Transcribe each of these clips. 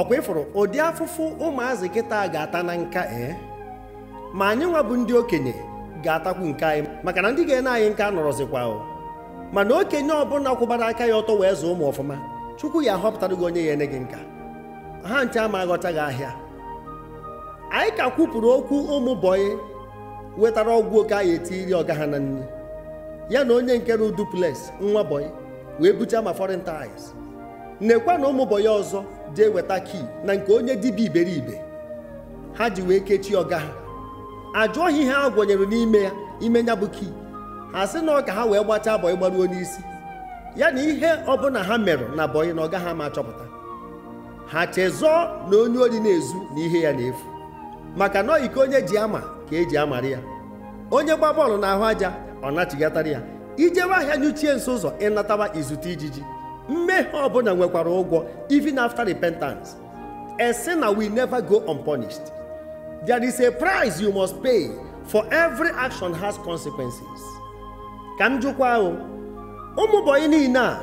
ọkwa ịfụrụ ụdị afụfụ ụmụazị kịta ga-ata na nka ee eh? ma anyị nwabụ bụ ndị okenye ga-atakwu nke anyị maka na ndị ga-ene anyị nka nọrọzikwa mana okenye ọbụla kwụbara aka ya ọtọ wee zụọ ụmụ ọfụma chukwu ya ahọpụtara gị onye ya ene gị nka ha nche ama aghọta gị ahịa anyị ka kwupụrụ okwu ụmụ bọyị wetara ọgwụ oke anyị etiri ọga ha na nri ya na onye nke ru duplex nwa bọyị wee bucha ma foreign ties nekwa na ụmụ ya ọzọ jee weta kii na nke onye dibịa iberibe ha ji wee kechie ọga ha ajụọ ihe ha gwanyere n'ime ya ime ya bụ kii ha sị na ọ ka ha wee gbachaa abọyị gbaruo n'isi ya na ihe ọbụla ha merụ na bọyị na ọga ha ma chọpụta ha chezọọ na onye ori na-ezu na ihe ya na-efu maka na iko onye ji ama ka eji amara ya onye gba bọọlụ na ahụ aja ọ nachigatara ya ijewe ahịa nyuchie nso ụzọ ịnatawa izute ijiji mmehie ọbụla nwekwara ụgwọ even after repentance a na we never go unpunished there is a price you must pay for every action has consequences ka m jụkwa ahụ ụmụbọyị niile a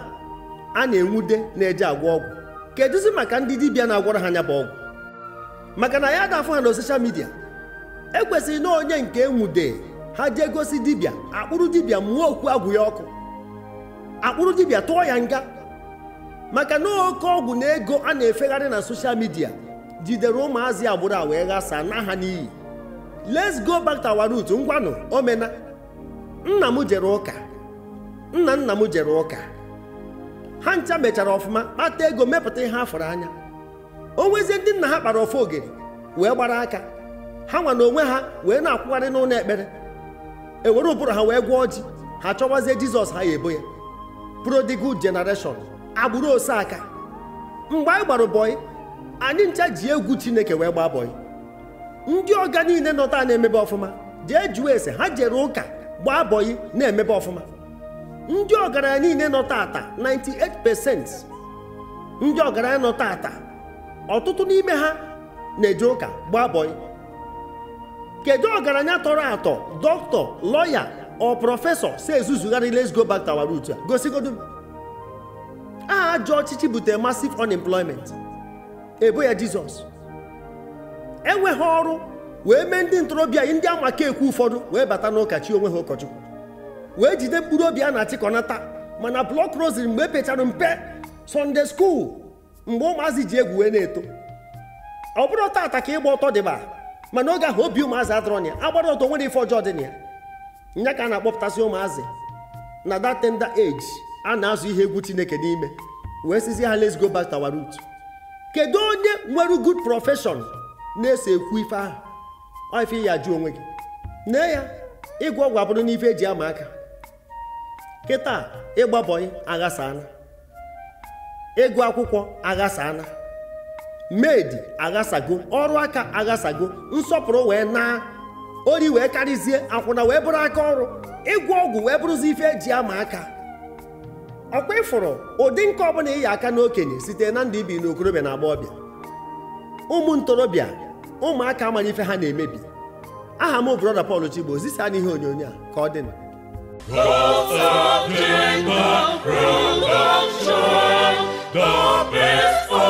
a na-enwude na-eje agwọ ọgwụ kedụzi maka ndị dibịa na-agwọrọ ha anya bụ ọgwụ maka na ya dafụ ha na soshal midia ekwesịghị na onye nke enwude ha jee gosi dibịa akpụrụ dibịa mụọ okwu agwụ ya ọkụ akpụrụ dibịa tụọ ya nga maka na oke ọgwụ na ego a na-efegharị na soshal midia jidere ụmụazị agbụrụ a wee ghasaa na ha n'iyi let's go back to our root ngwanụ omena nna m jere ụka nna nna m jere ụka ha ncha mechara ọfụma kpata ego mepụta ihe afọrọ anya o nwezie ndị nna ha kpara ofe ogere wee gbara aka ha nwa na onwe ha wee na-akwụgharị n'ụlọ ekpere ewere ụbụrụ ha wee gwọọ ji ha chọwazie jizọs ha ya ebo ya prodigal generation agbụrụ osaka mgbe anyị gbara bọị anyị ncha ji egwu chineke wee gbaa bọị ndị ọga niile nọta na-emebe ọfụma jee jụọ ese ha jere ụka gbaa bọị na-emebe ọfụma ndị ọgaranya niile nọ taata 98% ndị ọgaranya nọ taata ọtụtụ n'ime ha na-eje ụka gbaa bọị kedu ọgaranya tọrọ atọ dọkịta lọya ọ prọfesọ si ezuzugharị let's go back to our roots aha ajọ ọchịchị butere massive unemployment ebo ya jizọs enweghị ọrụ wee mee ndị ntorobịa ndị amaka ekwu ụfọdụ wee bata n'ụka onwe ha ụkọchukwu wee jide mkpụrụ obi a na-achịkọnata mana blọk rosary mgbe epechara mpe sọnde school mgbe ụmụazị ji egwu wee na-eto ọ bụrụ taata ka ịgba ọtọ dịba mana oge ahụ obi ụmụazị adịrọ ya agbara ọtọ nwere ife ọjọọ dị na ya nya ka a na-akpọpụtasị ụmụazị na that tender age a na-azụ ihe egwu chineke n'ime wee sizi ha let's go back to our root kedu onye nwere good profession na-ese ekwu ife ahụ ife ya jụ onwe gị nne ya ịgwọ ọgwụ abụrụ n'ife eji ama aka kịta ịgbabọyị aghasana ịgụ akwụkwọ aghasana medi aghasago ọrụ aka aghasago nsọpụrụ wee naa ori wee karịzie akwụna wee bụrụ aka ọrụ ịgwọ ọgwụ wee bụrụzi ife eji ama aka ọkwa ịfụrụ ụdị nke ọbụla ịyi aka n'okenye site na ndị ibi n'okorobịa na agba ọbịa. ụmụ ntorobịa ụmụaka amara ife ha na-emebi aha m brọda Pọl Chigbo zisa n'ihe onyonyo a ka ọ dị